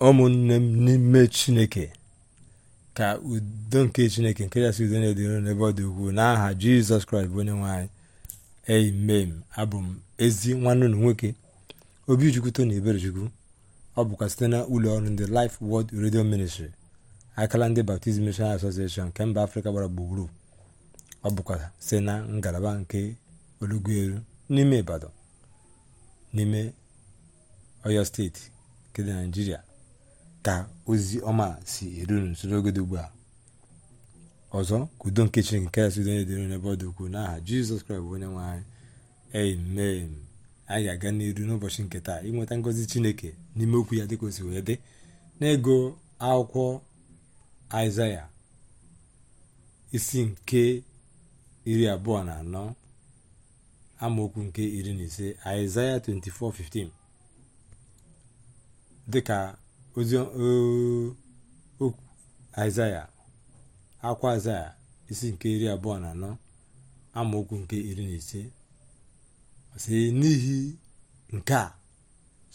ụmụnne m n'ime chineke ka udo nke chineke nke si udo na-edoro n'ebe ọ dị ukwuu n'aha jizọs kraịst bụ onye nwaanyị amen abụ m ezi nwanne na nwoke obi jukwuto na eberechukwu ọ bụkwa site na ụlọ ọrụ ndị Life Word Radio Ministry akala ndị Baptist Mission Association nke mba afrịka gbara gburugburu ọ bụkwa site na ngalaba nke olugueru n'ime ibadan n'ime oyo steeti nke dị naijiria ka ozi ọma si eru unu nso dị ugbu a ọzọ ka udo nke chineke nke asị onye dịrị n'ebe ọ dị ukwuu n'aha jizọs kraịst bụ onye nwe anyị amen anyị ga-aga n'iru n'ụbọchị nke taa ịnweta ngọzi chineke n'ime okwu ya dịka o si wee dị n'ego akwụkwọ aịzaya isi nke iri abụọ na anọ amaokwu nke iri na ise aịzaya 24:15 dịka ozi aịzaya eh, akwa aịzaya isi nke iri abụọ na anọ amaokwu nke iri na ise sị n'ihi nke a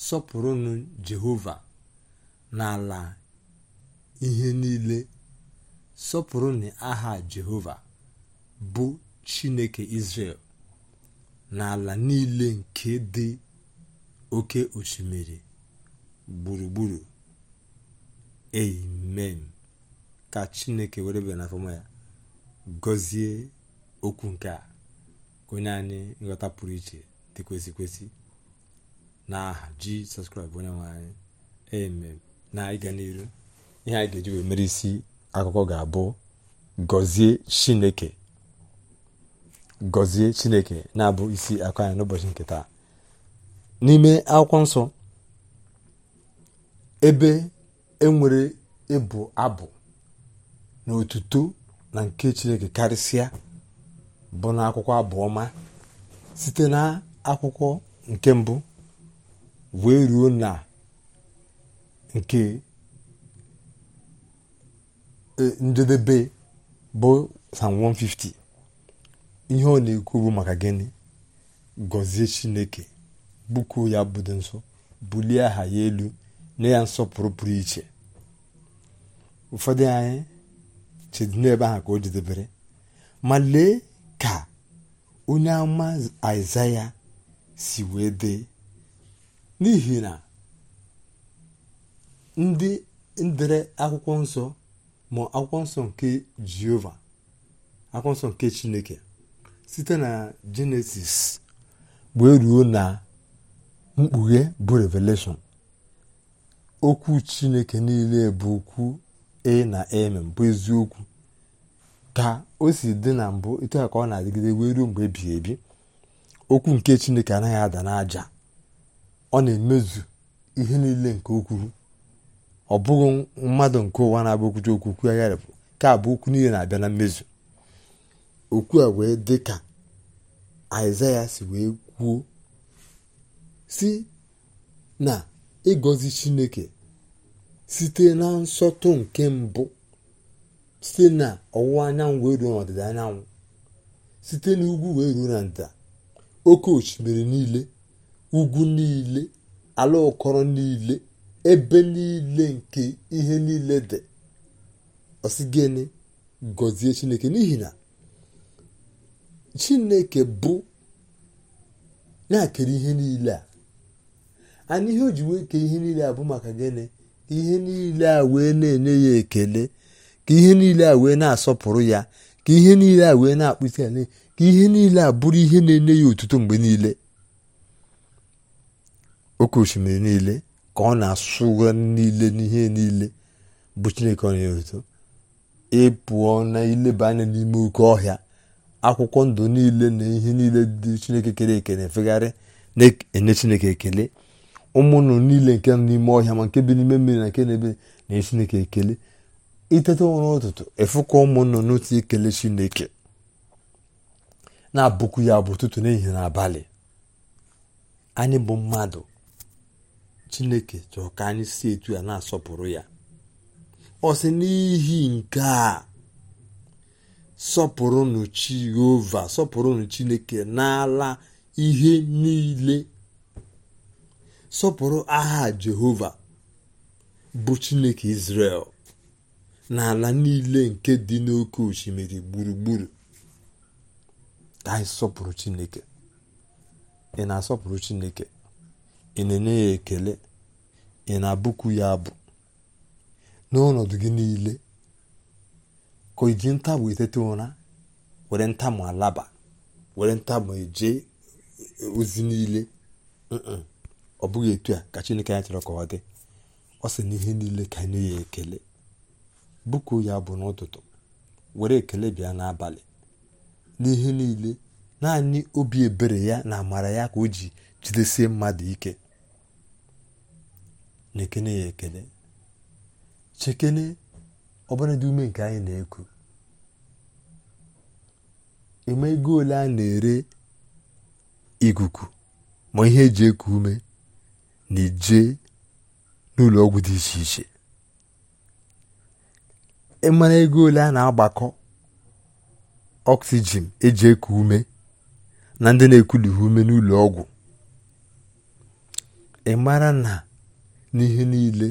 sọpụrụnụ jehova n'ala ihe niile sọpụrụnụ aha jehova bụ chineke israel n'ala niile nke dị oke osimiri gburugburu amen ka chineke were bịa n'afọma ya gọzie okwu nke a onye anyị nghọta pụrụ iche dị kwesị kwesị na aha jizọs kraịst onye nwe anyị amen na ịga n'iru ihe anyị ga-eji mere isi akụkọ ga-abụ gọzie chineke gọzie chineke na-abụ isi akụ anyị n'ụbọchị nke taa n'ime akwụkwọ nsọ ebe enwere ịbụ abụ na otuto na nke chineke karịsịa bụ na akwụkwọ abụọma site na akwụkwọ nke mbụ wee ruo na nke e, njedebe bụ sam 150 ihe ọ na-ekwu bụ maka gịnị gọzie chineke bụkuo ya budo nso bulie aha ya elu nye ya nsọpụrụ pụrụ iche ụfọdụ anyị chedo n'ebe ahụ ka o jedebere ma lee ka onye ama aịzaya si wee dee n'ihi na ndị ndere akwụkwọ nsọ ma akwụkwọ nsọ nke jehova akwụkwọ nsọ nke chineke site na jenesis wee ruo na mkpughe bụ revelation okwu chineke niile bụ okwu e na emem bụ eziokwu ka o si dị na mbụ etu ka ọ na-adịgide wee ruo mgbe ebighị ebi okwu nke chineke anaghị ada n'aja ọ na-emezu ihe niile nke o ọ bụghị mmadụ nke ụwa na-abụ okwuchi okwu ya agharịpụ ka abụ okwu niile na-abịa na mmezu okwu a wee dị ka aịzaya si wee kwuo si na ịgọzi chineke site na nsọtụ nke mbụ site na ọwụwa anyanwụ wee ruo n'ọdịda anyanwụ site na ugwu wee ruo na ndịda oke osimiri niile ugwu niile ala ụkọrọ niile ebe niile nke ihe niile dị ọsị gịnị gọzie chineke n'ihi na chineke bụ na-akere ihe niile a ana ihe o ji wee kee ihe niile a bụ maka gịnị ihe niile a wee na-enye ya ekele ka ihe niile a wee na-asọpụrụ ya ka ihe niile a wee na-akpụsi ala ka ihe niile a bụrụ ihe na-enye ya otuto mgbe niile oke osimiri niile ka ọ na-asụga niile n'ihe niile bụ chineke ọ na-enye ịpụọ na ileba anya n'ime oke ọhịa akwụkwọ ndụ niile na ihe niile dị chineke kere eke efegharị na-enye chineke ekele ụmụnụ niile nke nọ n'ime ọhịa ma nke bi n'ime mmiri na nke na ebe na chineke ekele iteta ụra ụtụtụ efụkọ ụmụnụ n'otu ekele chineke na-abụkwu ya bụ ụtụtụ n'ehihie na abalị anyị bụ mmadụ chineke chọrọ ka anyị si etu ya na-asọpụrụ ya ọ sị n'ihi nke a sọpụrụnụ jehova sọpụrụnụ chineke n'ala ihe niile sọpụrụ aha Jehova bụ Chineke Izrel n'ala niile nke dị n'oke osimiri gburugburu ka anyị sọpụrụ Chineke ị na-asọpụrụ Chineke ị na-enye ya ekele ị na-abụkwu ya abụ n'ọnọdụ gị niile ka iji ntabụ etete ụra were ntamụ alaba were ntamụ eje ozi niile ọ bụghị etu a ka chineke chọrọ ka ọ dị ọ sị na ihe niile ka nye ya ekele bụku ya bụ n'ụtụtụ were ekele bịa n'abalị n'ihe niile naanị obi ebere ya na amara ya ka o ji jidesie mmadụ ike na-ekene ya ekele chekene ọbụnadị ume nke anyị na-eku eme ego ole a na-ere ikuku ma ihe eji eku ume na ije n'ụlọ ọgwụ dị iche iche ịmara e ego ole a na-agbakọ ọksijin eji eku ume na ndị na-ekulughị ume n'ụlọ ọgwụ ị e mara na n'ihe niile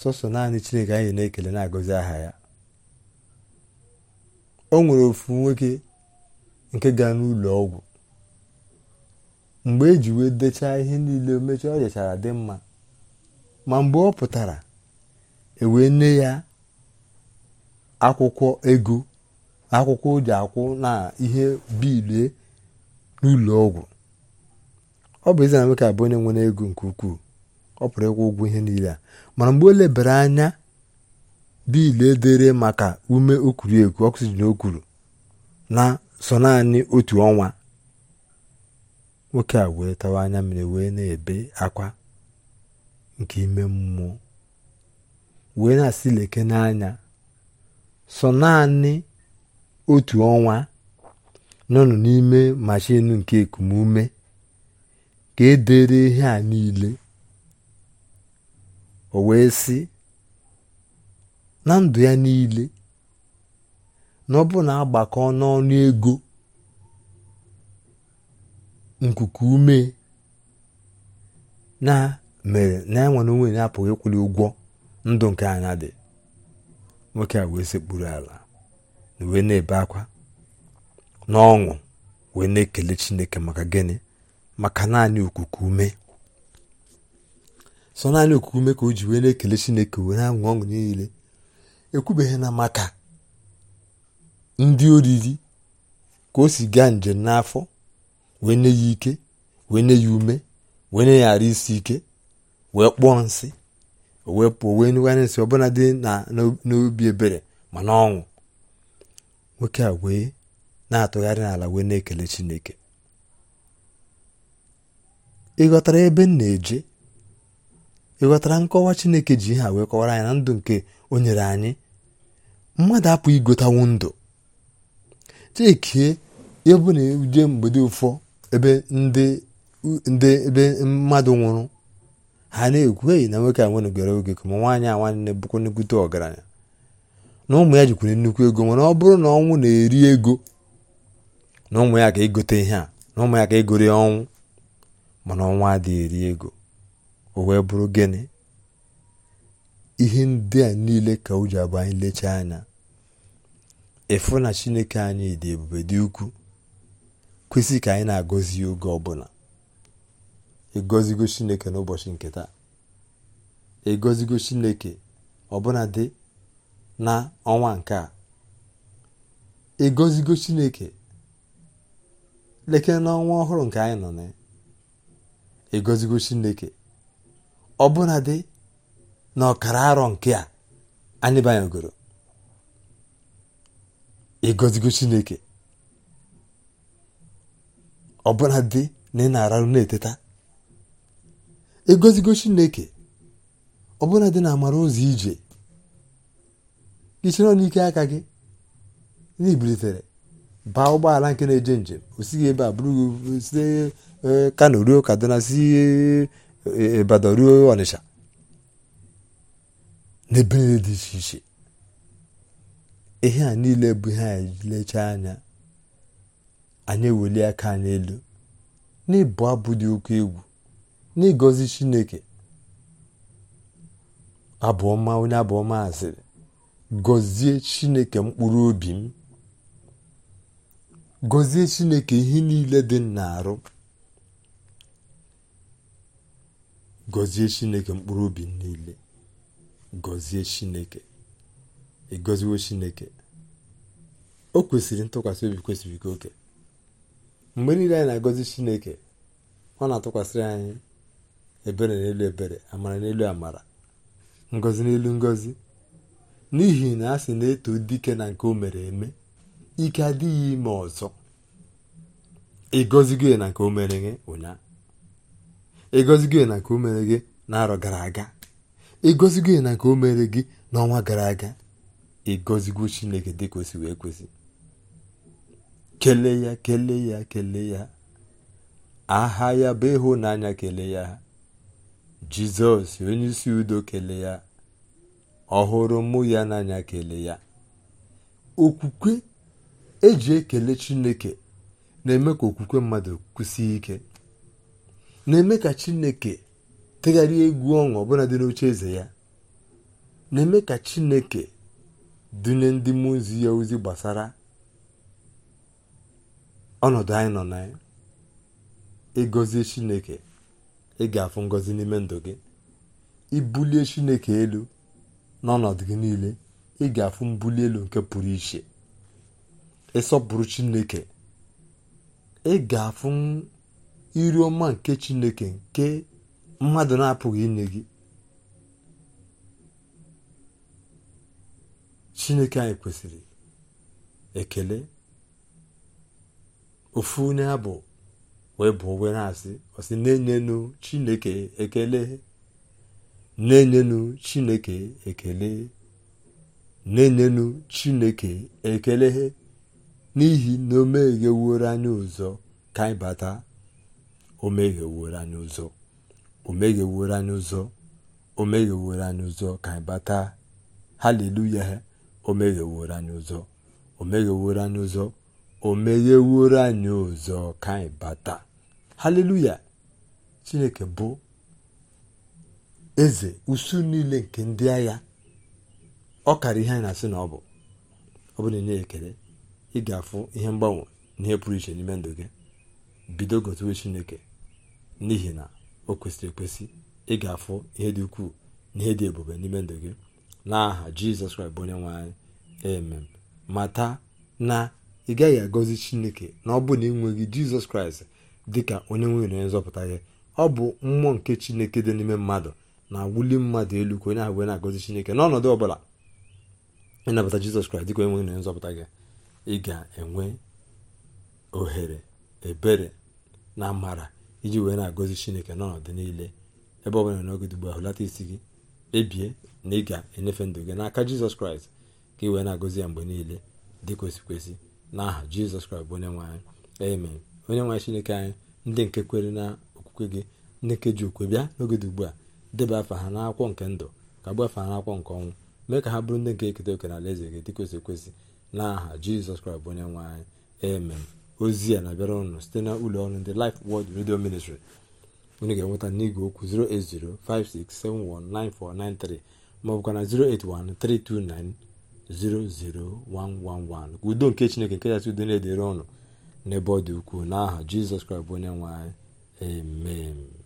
sọsọ naanị chineke anyị na-ekele na-agọzi aha ya o nwere ofu nwoke nke gaa n'ụlọ ọgwụ mgbe eji wee dechaa ihe niile mechaa ọ jechara dị mma ma mgbe ọ pụtara ewee nye ya akwụkwọ ego akwụkwọ o ji akwụ na ihe bilie n'ụlọ ọgwụ ọ bụ eze na nwoke abụ onye nwere ego nke ukwuu ọ pụrụ ịkwụ ụgwọ ihe niile a mana mgbe o lebere anya biil edere maka ume okuru ekwu oxygen o kwuru na so naanị otu ọnwa nwoke a wee tawa anya mmiri wee na-ebe akwa nke ime mmụọ wee na-asị leke n'anya sọ naanị otu ọnwa nọnụ n'ime mashin nke ekumume ka edere ihe a niile o wee sị na ndụ ya niile na ọ bụ na agbakọ n'ọnụ ego nkuku ume na mere na ya nwere onwe ya apụghị ịkwụli ụgwọ ndụ nke anya dị nwoke a wee sekpuru ala na wee na-ebe akwa na n'ọṅụ wee na-ekele chineke maka gịnị maka naanị okuku ume sọ naanị okuku ume ka o ji wee na-ekele chineke wee na-aṅụ ọṅụ niile ekwubeghị na maka ndị oriri ka o si gaa njem n'afọ wee nye ya ike wee nye ya ume wee nye ya ara isi ike wee kpụọ nsị wee pụọ wee nyekwara nsị ọbụla dị n'obi ebere ma na nwoke a wee na-atụgharị n'ala wee na-ekele chineke ịghọtara ebe m na-eje ịghọtara nkọwa chineke ji ihe a wee kọwara anyị na ndụ nke o nyere anyị mmadụ apụ igotanwu ndụ chekie ebe na-eje mgbede ụfọ ebe ndị ebe mmadụ nwụrụ ha na-ekwu eyi na nwoke a nwenugoro oge ka ma nwaanyị a nwanne bụkwa nnukwute ọgaranya na ụmụ ya jikwuru nnukwu ego nwere ọ bụrụ na ọnwụ na-eri ego na ụmụ ya ka egote ihe a na ụmụ ya ka egori ọnwụ mana ọnwa adịghị eri ego o wee bụrụ gịnị ihe ndị a niile ka o abụ anyị lechaa anya efu na chineke anyị dị ebube dị ukwuu kwesị ka anyị na-agọzi oge ọbụla ịgọzigo chineke n'ụbọchị nke taa ịgọzigo chineke ọbụla dị na ọnwa nke a ịgọzigo chineke lekere n'ọnwa ọhụrụ nke anyị nọ na ịgọzigo chineke ọbụla dị na ọkara arọ nke a anyị banyegoro ịgọzigo chineke ọbụla dị na ị na-ararụ na-eteta egozigo chineke ọbụla dị na amara ụzọ ije ichere n'ike aka gị na baa ụgbọala nke na-eje njem osighi ebe a bụrụ site e, kano ruo kaduna si e, e, ibadan ruo ọnịsha n'ebe niile dị iche iche ihe a niile bụ ihe anyị anya anyị eweli aka n'elu, elu n'ịbụ abụ dị oke egwu n'ịgọzi chineke abụọma onye abụọma asịrị gọzie chineke mkpụrụ obi m gọzie chineke ihe niile dị n'arụ. na gọzie chineke mkpụrụ obi m niile gọzie chineke ịgọziwo chineke o kwesịrị ntụkwasị obi kwesịrị oke mgbe niile anyị na-agọzi chineke ọ na-atụkwasịrị anyị ebere n'elu ebere amara n'elu amara ngozi n'elu ngozi n'ihi na a sị na-eto dike na nke o mere eme ike adịghị ime ọzọ ịgọzigo na nke o mere gị ụnyaahụ na nke o mere gị n'arọ gara aga ịgọzigo na nke o mere gị n'ọnwa gara aga ịgozigo chineke dịka o wee kwesị kele ya kelee ya kelee ya aha ya bụ ịhụnanya kele ya jizọs onye isi udo kele ya ọhụrụ mụ ya n'anya kele ya okwukwe eji ekele chineke na-eme ka okwukwe mmadụ kwụsie ike na-eme ka chineke tegharịa egwu ọṅụ ọbụla dị n'oche eze ya na-eme ka chineke dunye ndị mmụọ ya ozi gbasara ọnọdụ anyị nọ na ịgọzie chineke ị ga-afụ ngọzi n'ime ndụ gị ibulie chineke elu n'ọnọdụ gị niile ị ga-afụ mbuli elu nke pụrụ iche ịsọpụrụ chineke ị ga-afụ iri ọma nke chineke nke mmadụ na-apụghị inye gị chineke anyị kwesịrị ekele ofu na-abụ wee bụ ogwe na-asị ọsị na-enyenu chineke ekele na-enyenu chineke ekele na-enyenu chineke ekele n'ihi na o megheworo anyị ụzọ ka anyị bata o megheworo anyị ụzọ o megheworo anyị ụzọ o megheworo anyị ụzọ ka anyị bata haleluya o megheworo anyị ụzọ o megheworo anyị ụzọ o megheworo anyị ọzọ ka anyị bata haleluya chineke bụ eze usu niile nke ndị agha ọ kara ihe anyị na-asị na ọ bụ ọ bụ na enye ekele ị ga-afụ ihe mgbanwe na ihe pụrụ iche n'ime ndụ gị bido gotewe chineke n'ihi na o kwesịrị ekwesị ị ga-afụ ihe dị ukwuu na ihe dị ebube n'ime ndụ gị n'aha jizọs kraịst bụ onye nwe anyị emem mata na ị gaghị agọzi chineke na ọ bụ na ị nweghị jizọs kraịst dị ka onye nwe onye nzọpụta gị ọ bụ mmụọ nke chineke dị n'ime mmadụ na wuli mmadụ elu ka onye ahụ wee na-agọzi chineke n'ọnọdụ ọ bụla ịnabata jizọs kraịst dị ka onye nwe nzọpụta gị ị ga-enwe ohere ebere na amara iji wee na-agọzi chineke n'ọnọdụ niile ebe ọ bụla n'oge ugbu a hụlata isi gị ebie na ị ga-enyefe ndụ gị n'aka jizọs kraịst ka ị wee na-agọzi ya mgbe niile dị n'aha jizọs kraịst bụ onye nwe anyị onye nwe anyị chineke anyị ndị nke kwere na okwukwe gị ndị nke ji okwe bịa n'oge dị ugbu a deba afa ha n'akwụkwọ nke ndụ ka gbuo afa ha n'akwụkwọ nke ọnwụ mee ka ha bụrụ ndị nke eketa oke na alaeze gị dịka osi ekwesị n'aha jizọs kraịst bụ onye nwe anyị ozi a na-abịara ụnụ site na ụlọ ọrụ ndị lif wọd redio Ministry onye ga-enweta n'igwe okwu 08056719493 maọbụkwa na 0813290 00111 udo nke chineke nke kachasị udo na-edere ọnụ n'ebe ọ dị ukwuu n'aha jizọs kraịst bụ onye nwe anyị